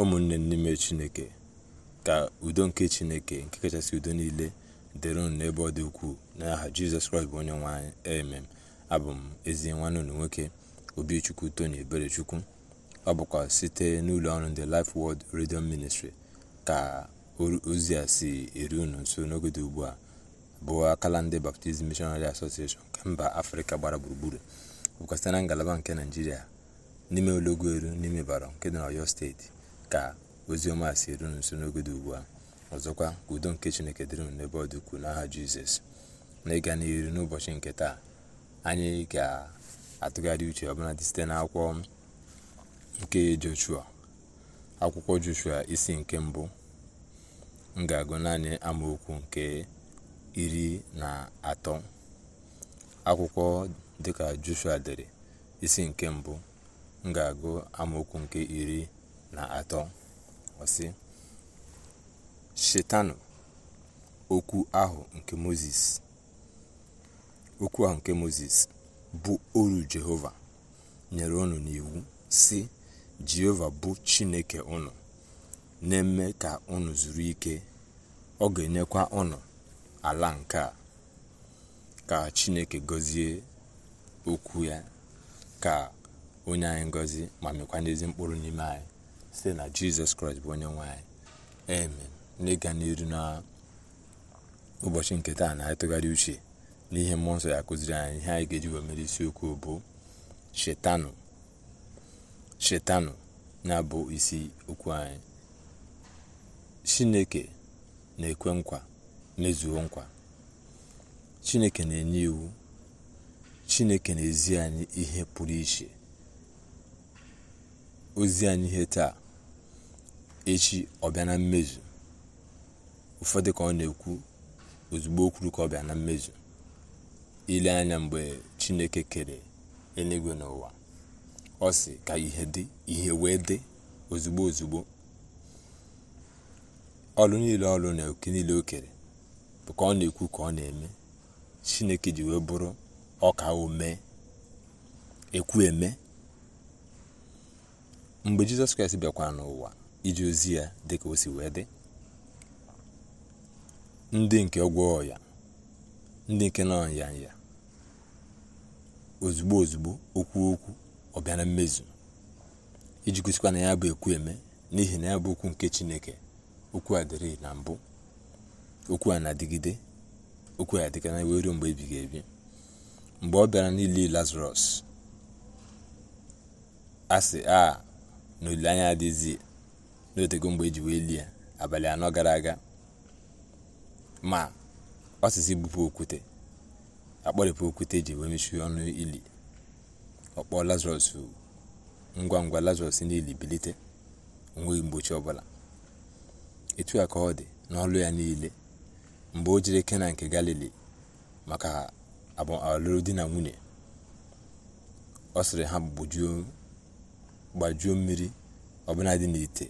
ụmụnne n'ime chineke ka udo nke chineke nke kachasị udo niile dịrị unu n'ebe ọ dị ukwuu n'aha jizọs kraịst bụ onye nwanyị anyị emem abụ m ezi nwanne unu nwoke obichukwu tony eberechukwu ọ bụkwa site n'ụlọ ọrụ ndị life world radio ministry ka ozi a si eru unu nso n'oge dị ugbu a bụ akala ndị baptizim missionary association nke mba afrịka gbara gburugburu bụkwa site na ngalaba nke naijiria n'ime ụlọgwu eru n'ime bara nke dị na ọyọ steeti ka oziọma si eru nso n'oge dị ugbu a ọzọkwa ka udo nke chineke dịrị m n'ebe ọ dị n'aha jizọs na ịga n'iru n'ụbọchị nke taa anyị ga-atụgharị uche dị site na n'akwụkwọ nke joshua akwụkwọ joshua isi nke mbụ m ga-agụ naanị amaokwu nke iri na atọ akwụkwọ dịka joshua dere isi nke mbụ m ga-agụ amaokwu nke iri na atọ ọsị shetanụ okwu ahụ nke moses okwu ahụ nke moses bụ oru jehova nyere unu n'iwu si jehova bụ chineke unu na-eme ka unu zuru ike ọ ga-enyekwa unu ala nke a ka chineke gọzie okwu ya ka onye anyị ngozi ma mekwa n'ezi mkpụrụ n'ime anyị site na jizọs kraịst bụ onye nwanyị amen n'ịga n'iru na ụbọchị nke taa na atụgharị uche n'ihe mmụọ nsọ ya kụziri anyị ihe anyị ga-eji wee mere isiokwu bụ shetanụ shetanụ na-abụ isi okwu anyị chineke na-ekwe nkwa mezuo nkwa chineke na-enye iwu chineke na-ezi anyị ihe pụrụ iche ozi anyị ihe taa echi ọ bịa na mmezu ụfọdụ ka ọ na-ekwu ozugbo okwuru ka ọ bịa na mmezu ile anya mgbe chineke kere eluigwe n'ụwa ọ si ka ihe dị ihe wee dị ozugbo ozugbo ọlụ niile ọlụ na oke niile o kere bụ ka ọ na-ekwu ka ọ na-eme chineke ji wee bụrụ ọka ome ekwu eme mgbe jizọs kraịst bịakwara n'ụwa ije ozi ya dịka o si wee dị ndị nke ọgwọ ọya ndị nke nọ ya nya ozugbo ozugbo okwu okwu ọ bịa na mmezu iji gosikwa na ya bụ ekwu eme n'ihi na ya bụ okwu nke chineke okwu a dịrị na mbụ okwu a na-adịgide okwu a dịka na wee ruo mgbe ebighị ebi mgbe ọ bịara n'ili lazarus a a na olileanya adịghịzi n'otego mgbe e ji wee lie abalị anọ gara aga ma ọsịsị bupụ okwute akpọrịpụ okwute e ji wee mechie ọnụ ili ọkpọ lazarus ngwa ngwa lazarus n'ili bilite onweghị mgbochi ọbụla etu a ka ọ dị n'ọlụ ya niile mgbe o jiri kena nke galili maka alụrụ di na nwunye ọ sịrị ha gbajuo mmiri ọbụla dị n'ite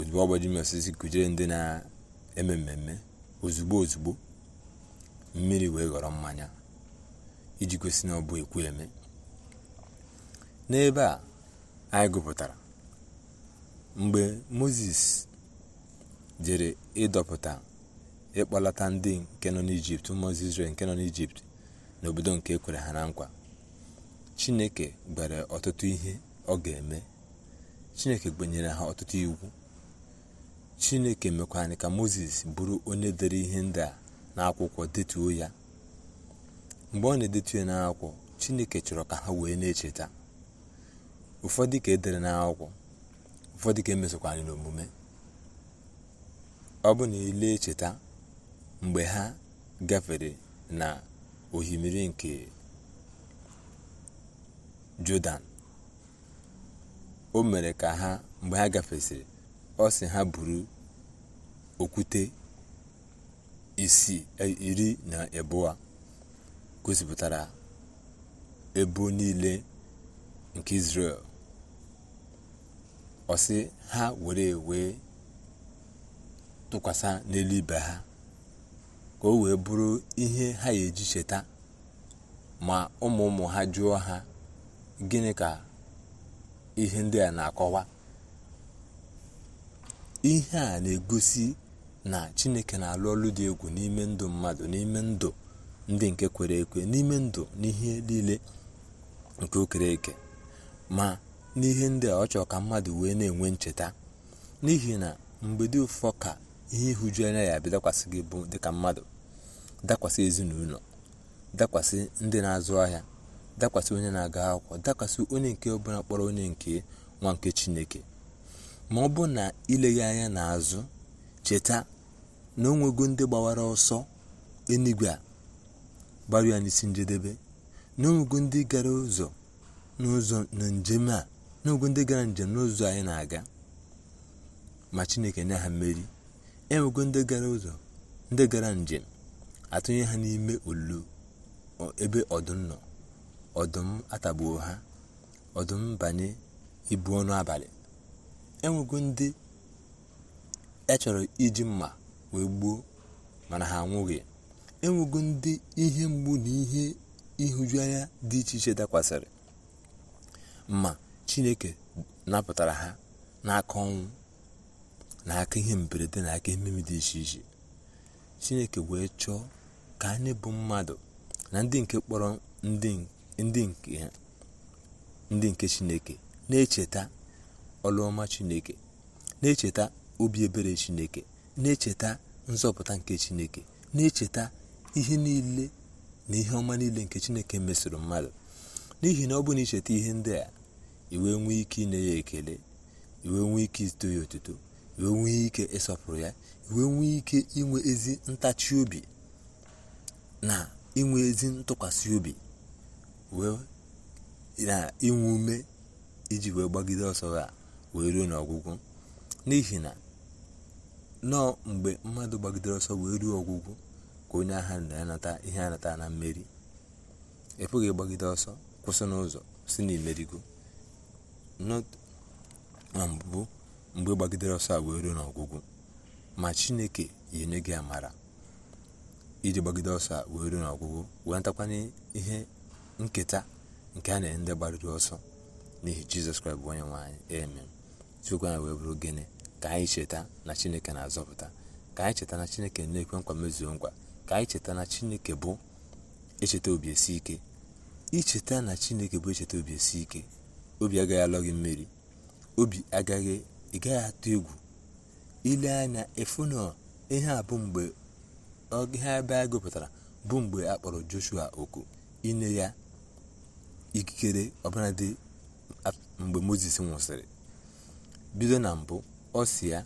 ozugbo ọgbaji osisi kụjere ndị na-eme mmemme ozugbo ozugbo mmiri wee ghọrọ mmanya iji kwesị na ọ bụ ekwu eme n'ebe a anyị gụpụtara mgbe moses jere ịdọpụta ịkpọlata ndị nke nọ n'ijipt ụmụ Izrel nke nọ n'ijipt n'obodo nke ekwere ha na nkwa chineke gwere ọtụtụ ihe ọ ga-eme chineke gbenyere ha ọtụtụ iwu chineke mekwa ka moses bụrụ onye dere ihe ndị a n'akwụkwọ detuo ya mgbe ọ na-edetu ya n'akwụkwọ chineke chọrọ ka ha wee na-echeta ụfọdụ ka edere n'akwụkwọ ụfọdụ ka emesokwara n'omume ọ bụ na ile e echeta mgbe ha gafere na ohimiri nke jọdan o mere ka ha mgbe ha gafesịrị ọ sị ha buru okwute isi e, iri na a gosipụtara ebo niile nke Izrel ọ ha were wee tụkwasị n'elu ibe ha ka o wee bụrụ ihe ha ga-eji cheta ma ụmụ ụmụ ha jụọ ha gịnị ka ihe ndị a na-akọwa ihe a na-egosi na chineke na-alụ ọlụ dị egwu n'ime ndụ mmadụ n'ime ndụ ndị nke kwere ekwe n'ime ndụ n'ihe niile nke okere eke ma n'ihe ndị a ọ chọrọ ka mmadụ wee na-enwe ncheta n'ihi na mgbe dị ụfọ ka ihe ịhụju anya ya abịa dakwasị gị bụ dịka mmadụ dakwasị ezinụlọ dakwasị ndị na-azụ ahịa dakwasị onye na-aga akwụkwọ dakwasị onye nke ọbụla kpọrọ onye nke nwa nke chineke ma ọ bụ na ileghị anya n'azụ cheta na o nwego ndị gbawara ọsọ enigwe a gbara ya n'isi njedebe na onwego ndị gara ụzọ n'ụzọ na njem a n'ogo ndị gara njem n'ụzọ anyị na-aga ma chineke nye ha mmeri enwego ndị gara ụzọ ndị gara njem atụnye ha n'ime olulu ebe ọdụm nọ ọdụm atagbuo ha ọdụm banye ibu ọnụ abalị enwego ndị e chọrọ iji mma wee gbuo mana ha anwụghị enwego ndị ihe mgbu na ihe ịhụjuanya dị iche iche dakwasịrị ma chineke napụtara ha n'aka ọnwụ na aka ihe mberede na aka ememe dị iche iche chineke wee chọọ ka anyị bụ mmadụ na ndị nke kpọrọ ndị nke chineke na-echeta ọlụọma chineke na-echeta obi ebere chineke na-echeta nzọpụta nke chineke na-echeta ihe niile na ihe ọma niile nke chineke mesoro mmadụ n'ihi na ọ bụ na icheta ihe ndị a iwe nwee ike inye ya ekele iwe nwee ike ito ya otuto iwe nwee ike ịsọpụrụ ya iwe nwee ike inwe ezi ntachi obi na inwe ezi ntụkwasị obi wee na inwe ume iji wee gbagide ọsọ a wee ruo n'ọgwụgwụ n'ihi na nọọ mgbe mmadụ gbagidere ọsọ wee ruo ọgwụgwụ ka onye agha na-anata ihe anata na mmeri ị pụghị ịgbagide ọsọ kwụsị n'ụzọ si n'imerigo imerigo na mgbe gbagidere ọsọ a wee ruo n'ọgwụgwụ ma chineke yenye gị amara iji gbagide ọsọ a wee ruo n'ọgwụgwụ wee natakwanye ihe nketa nke a na-enye ndị gbariri ọsọ n'ihi jizọs kraịst bụ onye nwe anyị chukwu anyị wee bụrụ gịnị ka anyị cheta na chineke na-azọpụta ka anyị cheta na chineke na-ekwe nkwa mezuo nkwa ka anyị cheta na chineke bụ echeta obi esi ike icheta na chineke bụ echeta obi esi ike obi agaghị alọ gị mmiri obi agaghị ị gaghị atụ egwu ile anya ịfụ na ihe a bụ mgbe ihe ebe a gụpụtara bụ mgbe a kpọrọ joshua oku ine ya ikikere ọbụladị mgbe moses nwụsịrị bido na mbụ ya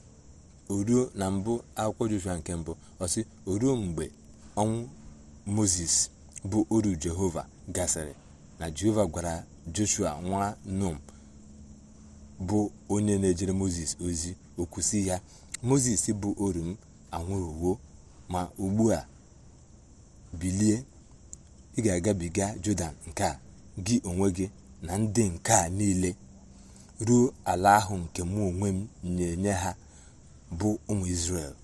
oruo na mbụ akwụkwọ joshua nke mbụ ọsị oruo mgbe ọnwụ moses bụ oru jehova gasịrị na jehova gwara joshua nwa num bụ onye na-ejere moses ozi okwusi ya moses bụ oru m anwụrụwo ma ugbu a bilie ị ga-agabiga jọdan nke gị onwe gị na ndị nke a niile ruo ala ahụ nke mụ onwe m na-enye ha bụ ụmụ isrel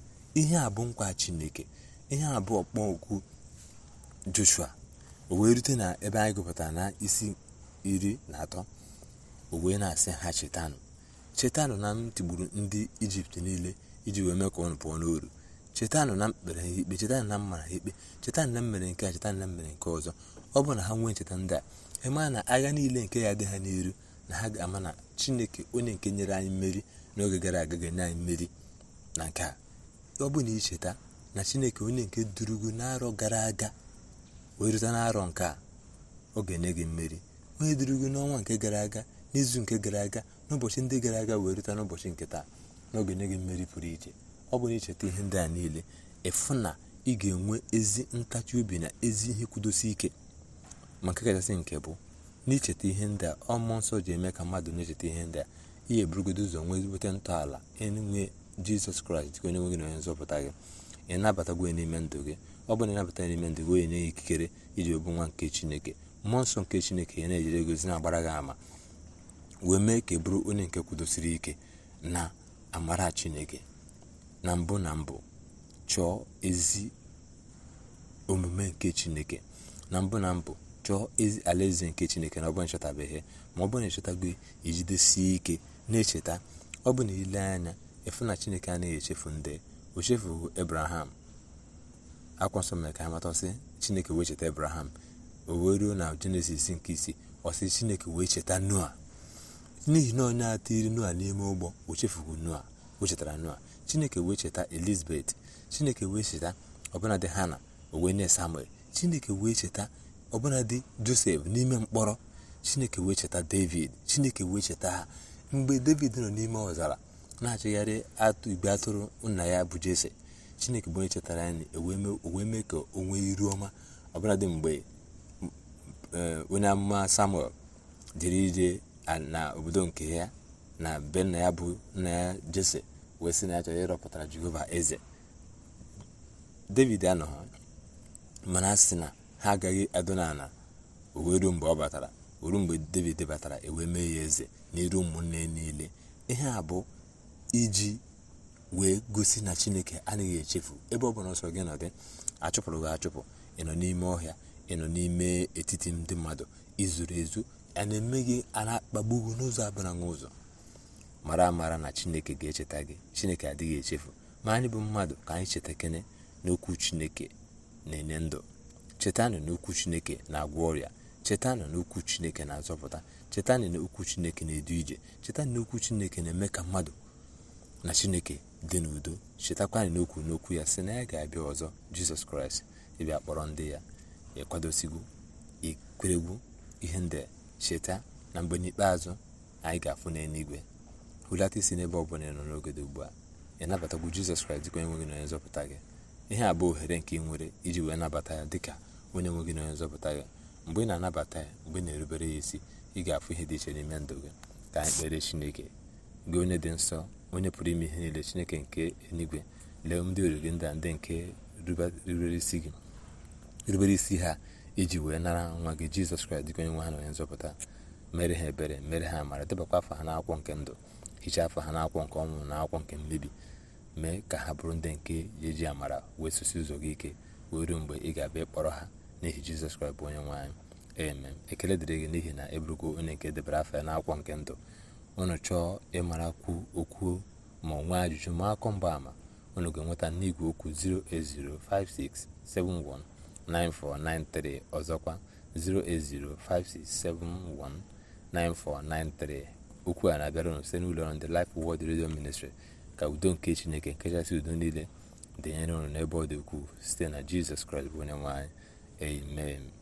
ihe a bụ nkwa Chineke ihe a bụ ọkpọ okwu Joshua o wee rute na ebe anyị gụpụtara na isi iri na atọ o wee na-asị ha chetanụ chetanụ na m tigburu ndị Ijipt niile iji wee mee ka ọnụ pụọ n'oru chetanụ na mkpere ha ikpe chetanụ na mma ha ikpe chetanụ na mmere nke a chetanụ na mmere nke ọzọ ọ bụ na ha nwee ncheta ndị a ịmaa na agha niile nke ya dị ha n'iru na ha ga-ama na chineke onye nke nyere anyị mmeri n'oge gara aga ga-enye anyị mmeri na nke a ọ bụ na icheta na chineke onye nke durugu n'arọ gara aga wee rute n'arọ nke a ọ ga-enye gị mmeri onye durugu n'ọnwa nke gara aga n'izu nke gara aga n'ụbọchị ndị gara aga wee rute n'ụbọchị nke taa na ọ enye gị mmeri pụrụ iche ọ bụ na icheta ihe ndị a niile ịfụ na ị ga-enwe ezi ntachi obi na ezi ihe kwudosi ike ma nke kachasị nke bụ n'icheta ihe ndị a ọmụ nsọ ji eme ka mmadụ na-echeta ihe ndị a ihe burugodo ụzọ nwee ezigbote ntọala enwe jizọs kraịst ka onye nwe gị na onye nzọpụta gị ị nabatagwo ya n'ime ndụ gị ọ bụ na ịnabata ya n'ime ndụ gị onye nye ya ikikere iji obu nwa nke chineke mmụọ nsọ nke chineke ya na ejire gozi na-agbara gị ama wee mee ka bụrụ onye nke kwudosiri ike na amara chineke na mbụ na mbụ chọọ ezi omume nke chineke na mbụ na mbụ chọọ ezi alaeze nke chineke na ọ bụrụ na ma ọ bụrụ na ịchọtago ijidesie ike na-echeta ọ bụ na ile anya efu na chineke anaghị echefu ndị o chefughị ebraham akwa nsọ mere ka ha matasị chineke wee cheta ebraham o wee ruo na jenesis nke isii ọ sị chineke wee cheta noa n'ihi na onye atiri noa n'ime ụgbọ o noa ochetara noa chineke wee cheta elizabeth chineke wee cheta ọbụnadị hana o na nye samuel chineke wee cheta ọbụna dị josef n'ime mkpọrọ chineke wee cheta david chineke wee cheta ha mgbe david nọ n'ime ọzara na-achịgharị igbe atụrụ nna ya bụ jese chineke bụ onye chetara ya ewee mee ka o nwee iru ọma ọbụla dị mgbe eh, onye amụma samuel jere ije na obodo nke ya na be nna ya bụ nna ya jese wee sị na ya chọrọ ịrọpụtara jehova eze david anọghị mana sị na ha agaghị adọna ala o wee ruo mgbe ọ batara oru mgbe david batara ewee mee ya eze n'iru ụmụnne niile ihe a bụ iji wee gosi na chineke anaghị echefu ebe ọ bụla nsọ gị nọ dị achụpụrụ gị achụpụ ị nọ n'ime ọhịa ị nọ n'ime etiti ndị mmadụ izuru ezu a na-eme gị ana akpagbugu n'ụzọ abụla n'ụzọ mara amara na chineke ga-echeta gị chineke adịghị echefu ma anyị bụ mmadụ ka anyị cheta kene n'okwu chineke na-enye ndụ chetanụ na okwu chineke na-agwọ ọrịa chetanụ na okwu chineke na-azọpụta chetanụ na okwu chineke na-edu ije chetanụ na okwu chineke na-eme ka mmadụ na chineke dị n'udo chetakwanụ n'okwu n'okwu ya sị na ya ga-abịa ọzọ jizọs kraịst ịbịa kpọrọ ndị ya ịkwadosigo ikweregwu ihe ndị cheta na mgbe n'ikpeazụ anyị ga-afụ n'eluigwe hulata isi n'ebe ọ bụla nọ n'ogede ugbu a ị nabatagwu jizọs kraịst dịka onye nwe gị na onye nzọpụta gị ihe a bụ ohere nke ị nwere iji wee nabata ya dịka onye nwe gị na onye nzọpụta gị mgbe ị na-anabata ya mgbe ị na-erubere ya isi ị ga-afụ ihe dị iche n'ime ndụ gị ka anyị kpere chineke gị onye dị nsọ onye pụrụ ime ihe niile chineke nke enigwe lee ndị ori gị ndị a ndị nke rubere isi ha iji wee nara nwa gị jizọs kraịst dịka onye nwe ha na onye nzọpụta mere ha ebere mere ha amara debakwa afọ ha n'akwụkwọ nke ndụ hichaa afọ ha n'akwụkwọ nke ọnwụ na akwụkwọ nke mmebi mee ka ha bụrụ ndị nke eji amara wee sosi ụzọ gị ike wee ruo mgbe ị ga-abịa ịkpọrọ ha n'ihi jizọs kraịst bụ onye nwe anyị amen ekele dịrị gị n'ihi na eburugo onye nke debere afọ ya n'akwụkwọ nke ndụ unu chọọ ịmarakwu okwu ma ọ nwee ajụjụ ma akọ mgba ama unu ga-enweta n'igwe okwu 08056719493 ọzọkwa 08056719493 okwu a na-abịara unu site n'ụlọ ọrụ ndị Redio Ministri ka udo nke chineke nke kachasị udo niile dịnyere unu n'ebe ọ dị ukwuu site na jizọs kraịst bụ onye nwe anyị Amen.